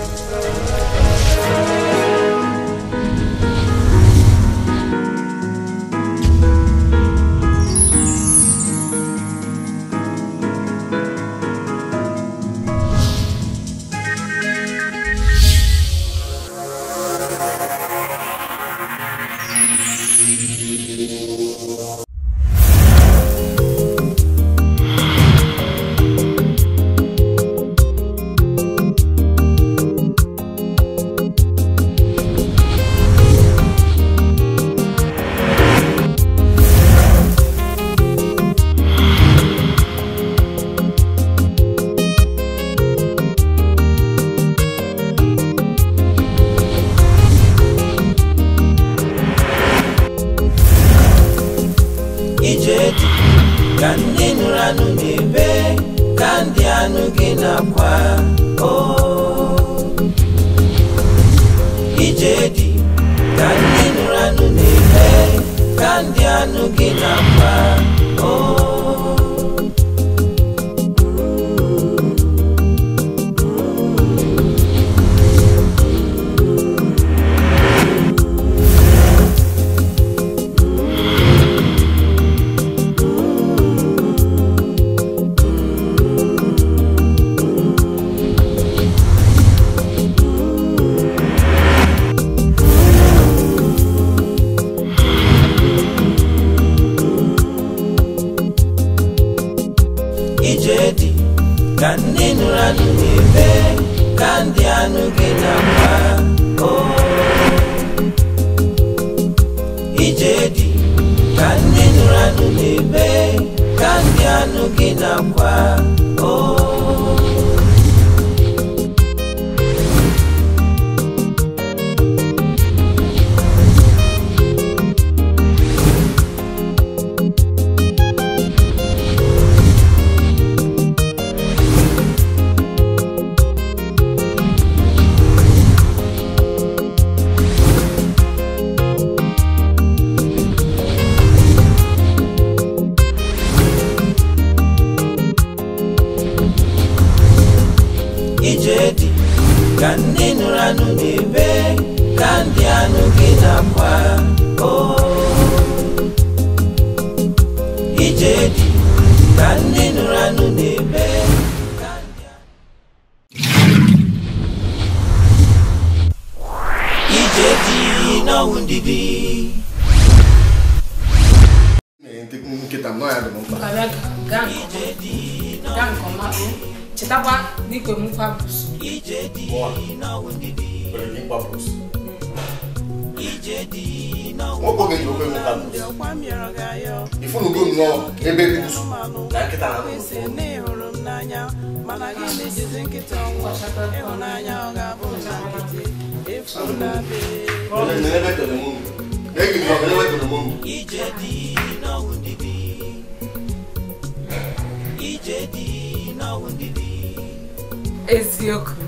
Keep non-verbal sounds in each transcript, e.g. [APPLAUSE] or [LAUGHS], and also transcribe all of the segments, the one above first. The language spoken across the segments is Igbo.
Thank you. looking up while ije dị ka ndị nụrụ anụ n'ebe ka ndị anụ gị na mma oh. ije dị ka ndị nụrụ anụ n'ebe ka ndị anụ gị na mma redi ka ndị nụrụ anụ n'ibe ka ndị anụ oh. na-akwa ije dị ka ndị nụrụ anụ n'ibe ije dị n'ọnwụ ndidi nkịta nọ ya dị mkpa gaa nke ọma chetakwa ìjẹ́dì iná wíńdídì. bẹ̀rẹ̀ ní pablos. ìjẹ́dì iná wíńdídì. wọ́n gbọ́dọ̀ ìlú pẹ̀lú pablos. ìfúnnu gbòmù náà ebe bíbùsù. dàkítà náà ló fún un. ìjẹ́dì iná wíńdídì. ìjẹ́dì iná wíńdídì. eziokwu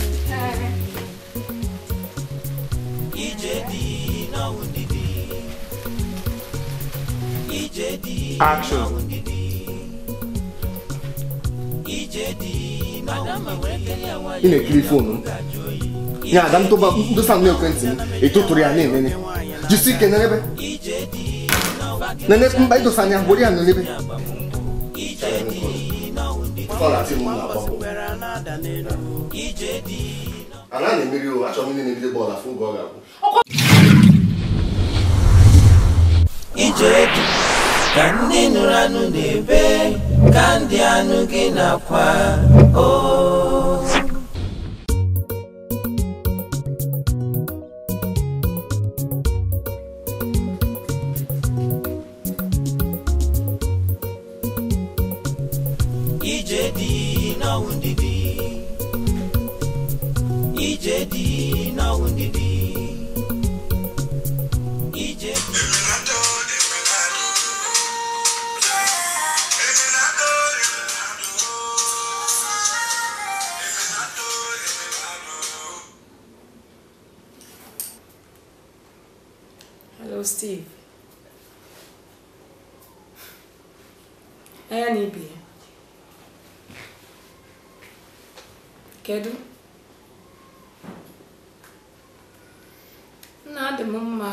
Ijedi na wundidi. Ijedi na wundidi. Ijedi na wundidi. Ina ekiri fonu. Nya adam to ba ndo sam na ekwentị m eto tụrụ ya na emene. Jisi ike na ebe. Nene mba idosa anya gbori ya na ebe. Fọlá àti mụ na agbapụ. Ala o achọghị ndị na-ebido bọọlụ afọ oge ọ ga ije edu ka ndị nụrụ anụ na-ebe ka ndị anụ gị na-akwa o oh. Kedu? nna adị m mma.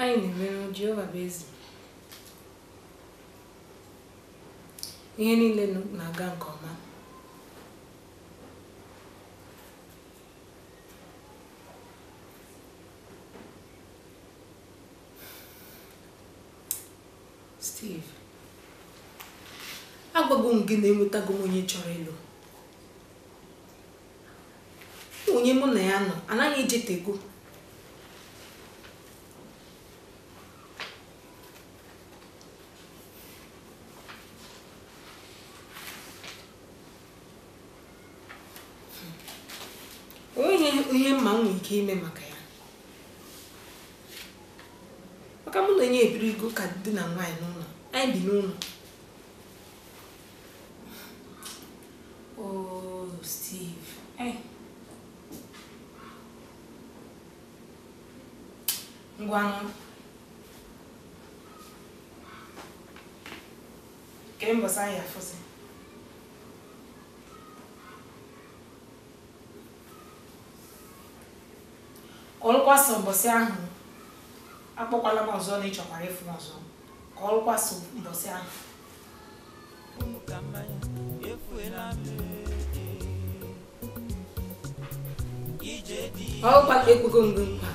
Anyị na-emere Jehova bụ eze. Ihe niile na-aga nke ọma. Steve. agwago m gị na-enwetago onye chọrọ ịlụ onye mụ na ya nọ anaghị ejetego onye ihe mma m ike ime maka ya maka mụ na onye ego ka dị na nwaanyị n'ụlọ anyị bi n'ụlọ ngwanụ nke mbọsị anyị afụsị ka ọlụkwasị mbọsị ahụ akpọkwala m ọzọ na ịchọkwara ịfụ m ọzọ ka ọlụkwasị mbọsị ahụ ọ ụkwa ka ekpego mgbe mkpa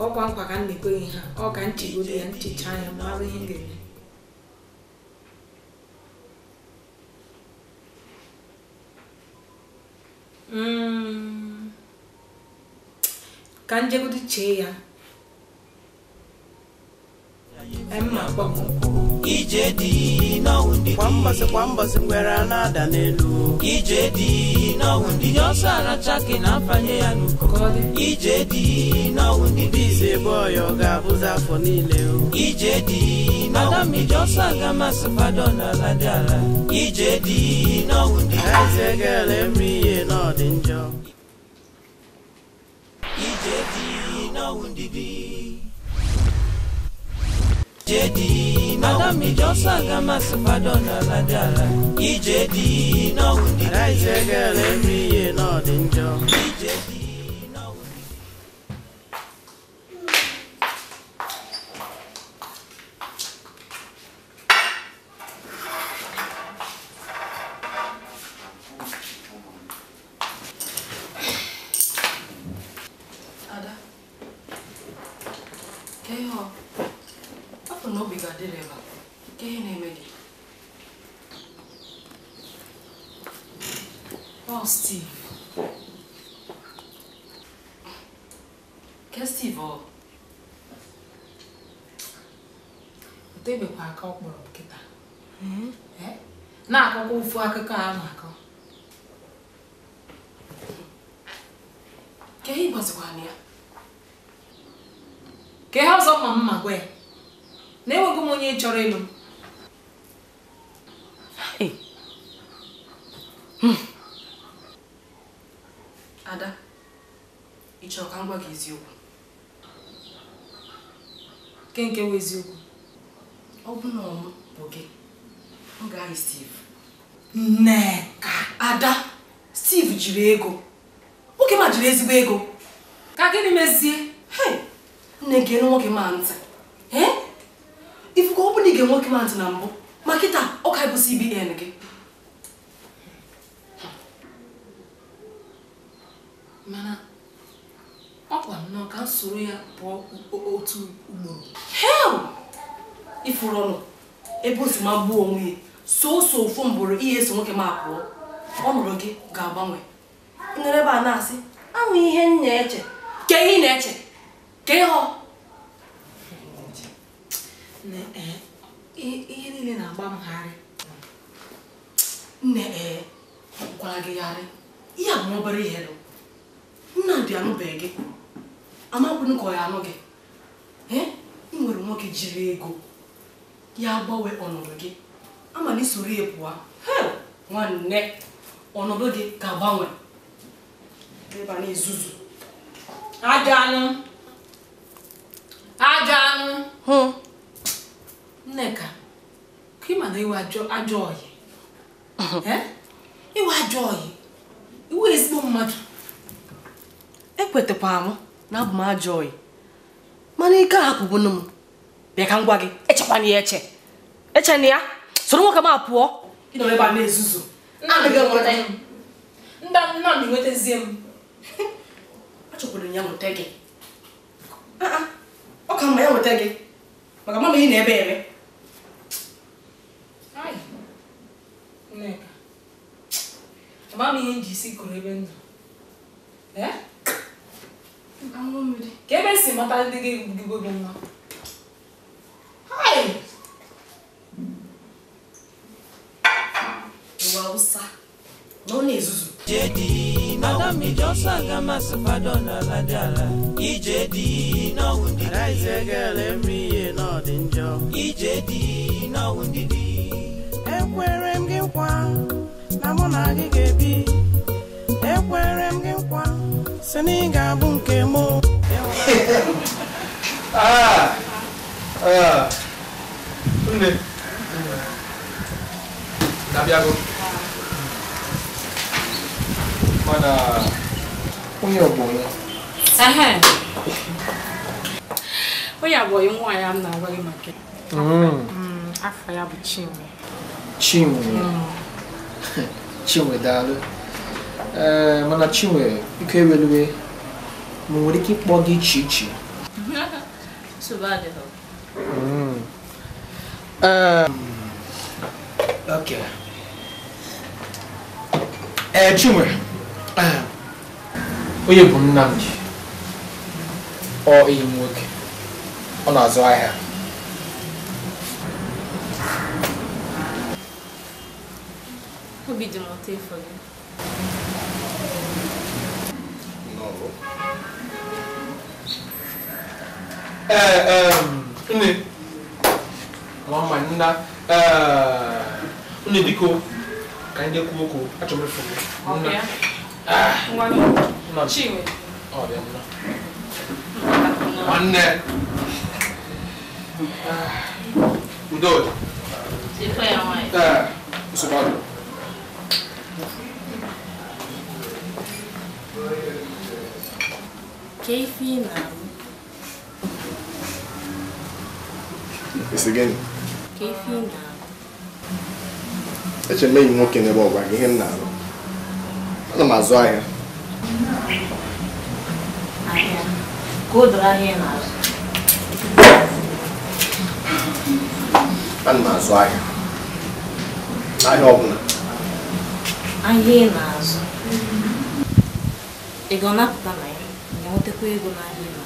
ọkwa nkwa ka m na-ekweghị ha ọ ka nchigodo ya nchicha ya mara hmm. ihe m ga-eme ka ụdị chee ya mma kpọm ije dị n'ọnwụ ndị kwa mbọsị kwa mbọsị nwere na-ada n'elu ije dị n'ọnwụ ndị Nye ọsọ aracha gị na afanye ya n'ukọkọdị ije dị n'ọnwụ ndị dị ize ebe ọya ọ ga-abụzi afọ niile ije dị n'ọnwụ ndị dị ọsọ aga masị kwado n'ala dị ala ije dị n'ọnwụ ndị eze ga-ele eme ihe n'ọdị njọ ije dị n'ọnwụ ndị dị ije dị Madam Ijosaga Masafadona Ladala EJD now we need Arise a girl every year not in job EJD na obi ga-adị ebe nke ihe na-eme gị ọ Steve ke Steve ọ otebekwa aka ọ kpọrọ m hmm? na-akọkwa ofu akụkọ a na-akọ ke ihe ịgwazikwana ya ka ihe ọzọ mma mma gwa na enweghị m onye chọrọ ịlụ hmm. ada ị chọrọ ka m gwa gị eziokwu nke nke bụ eziokwu ọ bụ na ọmụ bụ gị m ga Steve nneka ada Steve jiri ego nwoke ma jiri ezigbo ego ka gịnị mezie nne gị elu nwoke ma ntị ga-ege nwoke m ntị na mbụ ma kịta ọ ka bụ CBN gị mana ọ kwa nnọọ ka m soro ya pụọ otu ugboro hel ifuru ọnụ ebe o si ma gbuo onwe ya soso ofu mbụrụ ihe eso nwoke m apụọ ọnọdụ gị ga-agbanwe ịnọrọ ebe a na-asị anwụ ihe m na-eche ke ihe ị na-eche ke ịhọ ihe niile na-agba m gharị nne ee gwara gị gharị ihe bụ obere ihe nna nnamdị anụbeghị gị amakwụnụ ka ya anụ gị E ị nwere nwoke jiri ego ya gbanwe ọnọdụ gị ama na isoro ya nwanne ọnọdụ gị ga-agbanwe ebe a na anụ anụ Nneka, ka ị ma na iwe ajọ ọyị uh-huh. eh? iwe ajọ ọyị iwe ezigbo mmadụ ekwetakwara m na abụ m ajọ ọyị mana ike ahapụbụnụ m bịa ka m gwa gị echekwana ya eche echena ya soro nwoke m apụọ ịnọ ebe a na-ezuzu nnamdị nwetazie m achọkwara [LAUGHS] ya nweta gị ah, ah. ọ ka mma ya nweta gị maka mama ị na-ebe eme nneka ama m ihe nji isi kụrụ ebe ndụ eh? ka ebe si mata ndị gị gbugigo gị nwa ụwa ụsa na ọ na-ezuzu dị ala ije dị ihe n'ọdị dị ekwere mụ na gị ga-ebi ekwere m gị nkwa si na ị ga-abụ nke m [LAUGHS] ah, ah. nne na-abịago ya m na-agwa gị maka mm. Mm, afọ ya bụ Chinwe Chinwe mm. [LAUGHS] chinwe dalu eh, mana chinwe biko ewelue ma nwere ike ịkpọ gị iche iche ee chinwe [LAUGHS] hmm. eh, eh, onye bụ Nnamdi ọ enyi m nwoke ọ побіділа телефоні. Novo. Eh, eh, nne. Mama nna. Eh, nne biko. Ka ndị kwuo okwu, achọrọ m ịfụ gị. Nna. Ah. Nwa m. Chinwe. Ọ bịa nna. Nwanne. Udo. Ife ya nwaanyị. Eh, nsogbu que final It's again. que final Eche mmeghi nwoke n'ebe ọgwa gị ihe m na-arụ. Ana m azụ ahịa. Ahịa. Ka o doro ahịa ị na-azụ. Ana m azụ ahịa. na né? nwetakwa ego n'ahịa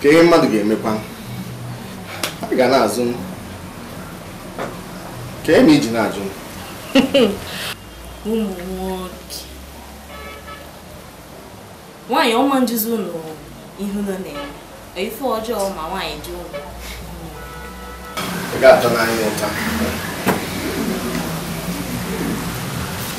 ka ihe mmadụ ga-emekwa ha ga na-azụ m ka eme iji na-ajụ m [LAUGHS] ụmụ nwoke nwaanyị ọma njuzi ụlọ ihu nọ na-eme ife ọjọọ ma nwaanyị jụọ ị ga-atọ n'anya ụta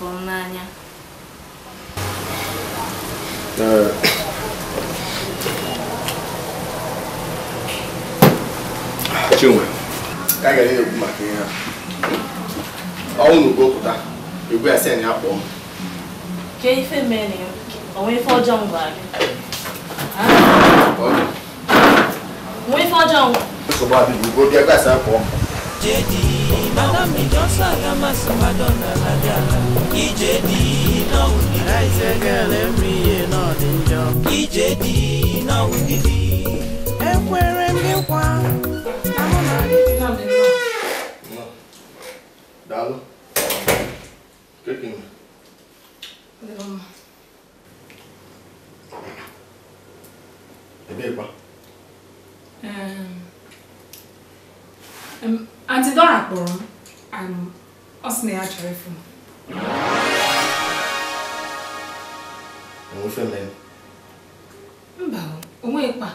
fụrụ n'anya e, chinwe ka a gara na-ekwu maka ihe a ọnwụ na ugopụta egwu ya sen ya kpọọ m kee ife mere onwe ife ọjọọ m gwara gị nwe ife ọjọọ m nsogbu adịghị ugbo bịa akpọọ m Ijedi na umijọ salama samadona na dala Ijedi na unidi I say girl every year na ọdịnjọ Ijedi na unidi Ekwere m gị nkwa ahụ na adịghị Dalo. Kekin. Ebee kwa? Um, um, Aunty Dora kpọrọ m ọ sị na ya chọrọ ịfụ m mba o nweghịkwa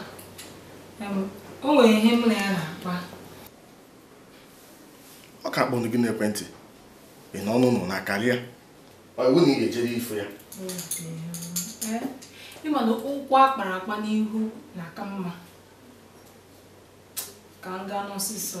o nwere ihe mụ na ya na-akpa ọ ka kpọrọ gị n'ekwentị ị n'ọnụ nọ na karịa iwu na ị ga-ejere ifo ya ịma na ụkwụ kpara akpa n'ihu na-aka mma ka m gaa n'ọsịsọ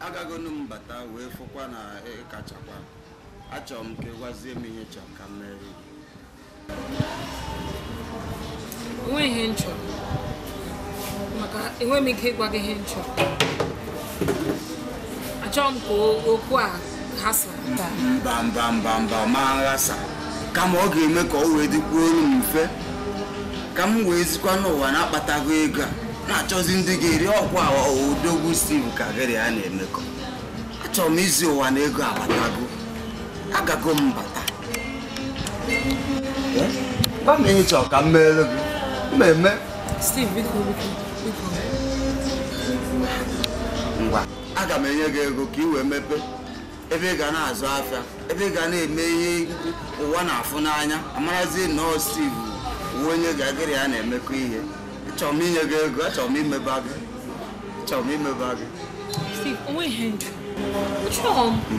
agagonu m wee fụkwa na ịkachakwa achọrọ m ka ịgwazie m ihe chọrọ ka m mere enweghị ihe m maka enweghị m ike ịgwa gị ihe m chọrọ m ka okwu a ghasa taa mba mba mba mba ma nghasa kama ọ ga-eme ka ọ wee dịkwuo olu m mfe ka m wee zikwa n'ụwa na-akpatago ego a na-achọzi ndị ga-eri ọkwa odogwu steve kagịrị a na-emekọ achọrọ m izi ụwa na ego abatago agago m bata kama eh? ị chọrọ ka m meere gị mmemme ngwa aga m enye gị ego ka ị wee mepee ebe ị ga na-azụ afịa ebe ị ga na-eme ihe ụwa na-afụ n'anya amarazi nọọ steve uwe onye gagịrị a na-emekọ ihe achọrọ m inye gị ego achọrọ m imeba gị achọrọ m imeba gị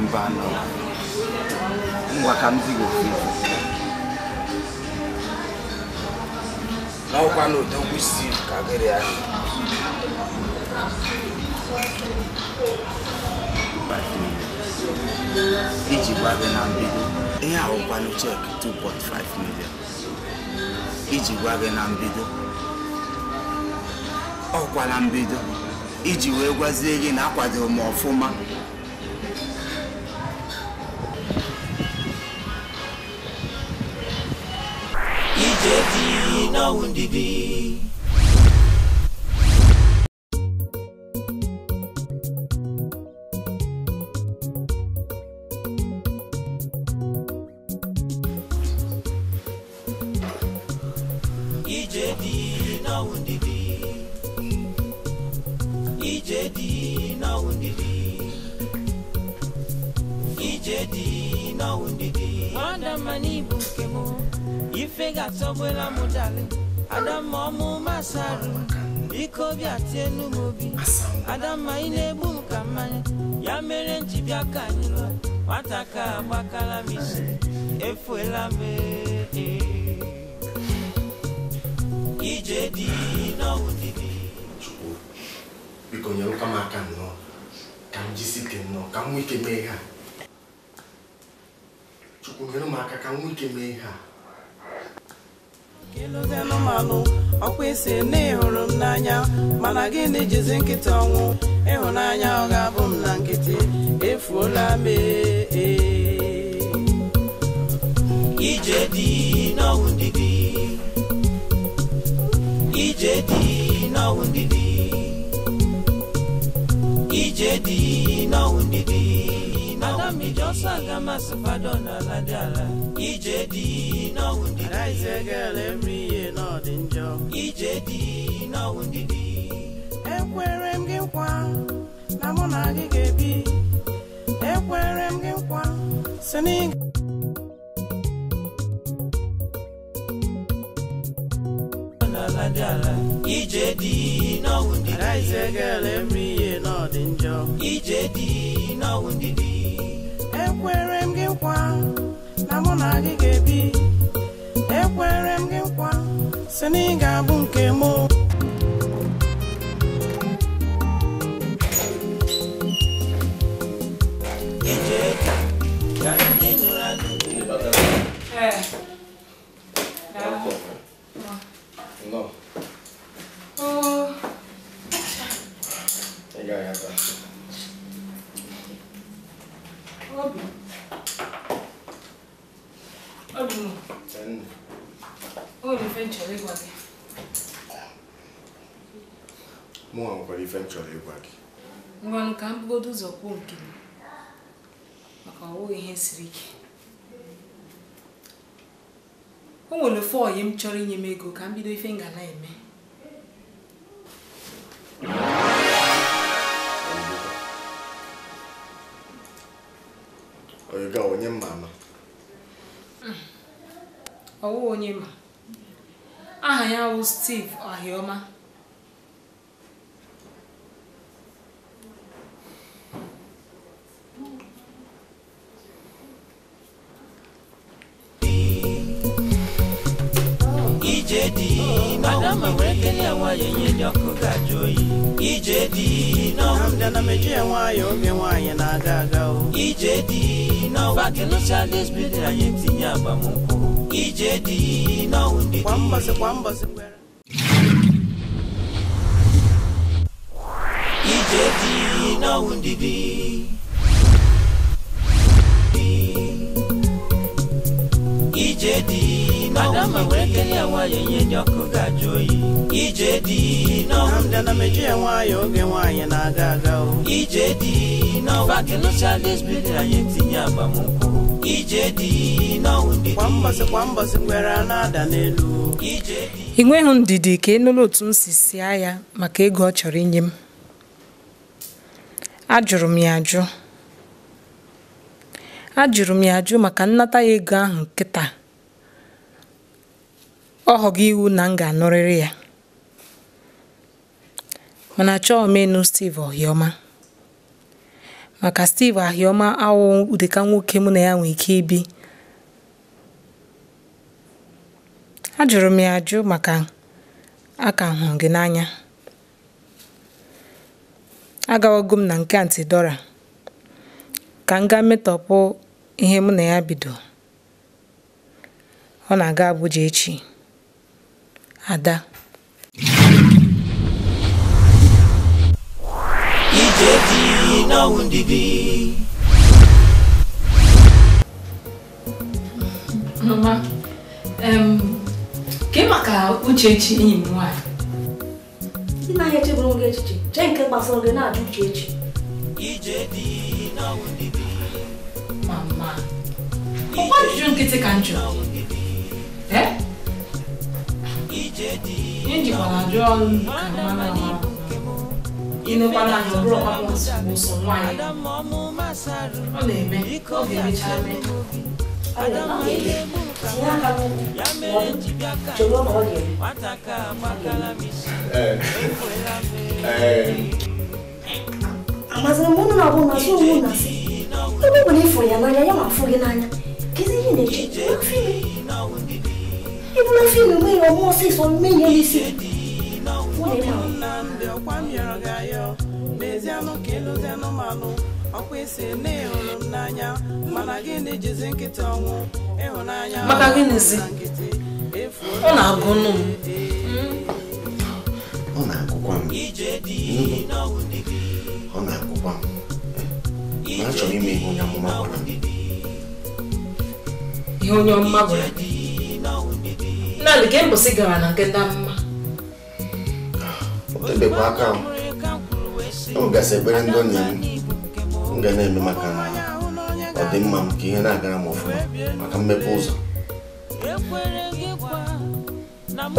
mba nọ ngwa ka m dị gị ofu n'ọkwa na odogwu isi ka gịrị ya iji gwa gị na mbido ihe ahụkwanụ cheki 2.5 million iji gwa gị na mbido ọkwa na mbido iji wee gwazie gị na akwadoro m ọfụma finger tọgbụla m dali adamma ọmụma sarụ biko bịa tie n'umobi ma ị na-egbu m mmanya ya mere m ji ka anyị lụọ nwata ka agbakala m isi efuela m eh. ije dị n'ọwụ dịdị biko nyerụkwa m aka nnọọ ka m ike nnọọ ka m nwee ike mee chukwu ka m ike mee ha iluzienụ malụ ọkwa isi na ịhụrụ m n'anya mana gịnị jizi nkịta ọnwụ ịhụnanya ọ ga-abụ m na nkịtị efuola m e, e. ije dị n'ọnwụ ndị dị ije dị n'ọnwụ ndị dị ije dị n'ọnwụ ndị Saga Masafadona Ladala. EJD, no wounded. I say, girl, every year, not in job. EJD, no wounded. Ekwere m gị nkwa na mụ na gị ga-ebi ekwere m gị nkwa si n'ịga ije dị n'ọnwụ ndị dị ije dị n'ọnwụ ndị dị na mụ na gị ga-ebi ekwere m gị nkwa si na ị ga-abụ nke mụ m chọrọ ka m bugodo ụzọ kwuo nke m maka ọwụghị ihe siri ike o nwere ofe ọyị m chọrọ inye m ego ka m bido ife ngala eme oyiga onye mma ama onye ma aha ya bụ Steve Ohioma ije dị n'ọnwụ ike ya nwayọ ndị ọkụ gaji oyi ije dị n'ọnwụ ndị na meju ya nwayọ oge nwaanyị na-aga aga o ije dị n'ọnwụ bakịlụcha lesbidi anyị tinye agbamnkwụ ije dị n'ọnwụ ndị di ije dị n'ọnwụ ndị dị ije dị Adamma wee kelee ya nwaanyị enye ndị ọkụ ga-ajụ oyi ije dị n'ọnwụ ndị na meju ya nwaanyị oge nwaanyị na-aga aga o ije dị n'ọba kelụcha lesbid anyị tinye agbamnkwụ ije dị n'ọnwụ ndị kwa mbọsị kwa mbọsị kwere na-ada n'elu ije ị nweghị ndidi ka enụlụ otu m si sie ya maka ego ọ chọrọ inye m ajụrụ m ya ajụ ajụrụ m ya ajụ maka nnata ya ego ahụ nkịta ọ ghọgo iwu na m ga-anụrịrị ya Ọ na-achọ omenu Steve Ohioma maka Steve Ahioma awụ dịka nwoke mụ na ya nwee ike ibi ajụrụ m ya ajụ maka aka hụrụ gị n'anya agawago m na nke Aunty ka m gaa metọpụ ihe mụ na ya bido ọ na-aga Abuja echi ada. ìjẹ́jì iná òǹdìdì. mama um, ka ị maka uchechi enyi m nwaanyị nna ya echeburu m echiche chee nke gbasara gị na-ajụ uchechi mama ọ gwa ajụjụ nkịtị ka m jụrụ Nijikwana John Kamanama. Inukwana anyị bụrụ ọkpakpọ nsogbu nwaanyị. Ọ na-eme mo ọ ga-emecha eme. Ọ na-eme tinye aka n'ụkwụ chọrọ na ọ ga-eme. Amazịrị m ụnụ na-abụ na so onwe na si. Ebe ọ bụla ịfụrụ ya n'anya ya ma afụ gị n'anya. Kedu ihe na-eche? Afọ ime. even if you may or more say some million is it. ọkwa isi na ịhụrụ n'anya mana gịnị jizi nkịta ọnwụ ịhụnanya maka gịnịzi ọ na-agụnụ m ọ na-agụkwa m ọ na-agụkwa m ma achọrọ ime ihe onye ọmụma ihe onye ọmụma naanị ka mbọsị gara na nke mma otebekwa aka m m gasị ekpere ndị onye m ga na-eme maka ọdịmma m ka ihe na-agara m ọfụma maka mmepe ụzọ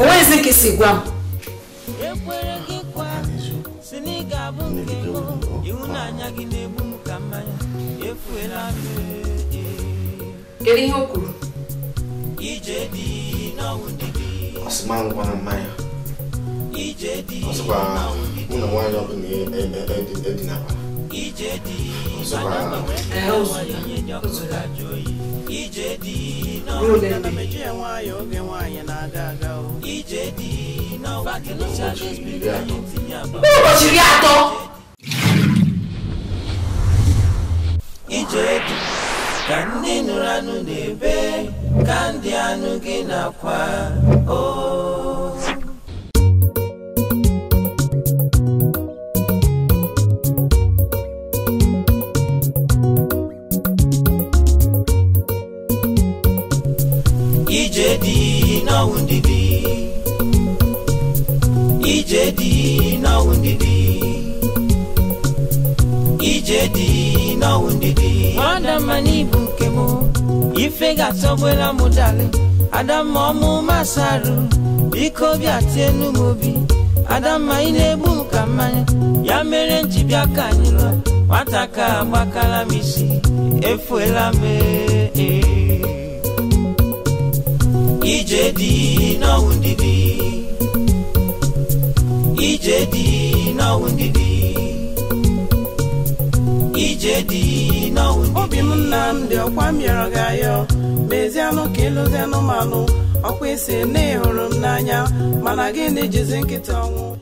onwezi nke si gwa m kedu ihe o kwuru ọsịma ngwa na mmanya ọsịkwa ụlọ nwaanyị ọbụla edinaba e, e, e, ụbọchị iri atọ ije dị ka ndị nụrụ anụ na-ebe ka ndị anụ gị Ijedi na ije dị n'ọnwụ ndidi ije dị n'ọnwụ ndidi ije dị n'ọnwụ ndidi ọ ife ga-atọgbula mụ dali adamma ọmụ masaru biko bịa tie n'ụmụ obi adamma ị na-egbu m ka mmanya ya mere m ji bịa ka anyị lụọ nwata ka agbakala m isi efuela m e. ije dị n'ọnwụ ndidi ije dị Chedi obi m dị ọkwa mịọrọ gị ayọ mezianụ ka ịlụzi anụmanụ ọkwa isi na ịhụrụ m n'anya mana gị na-ejizi nkịta ọnwụ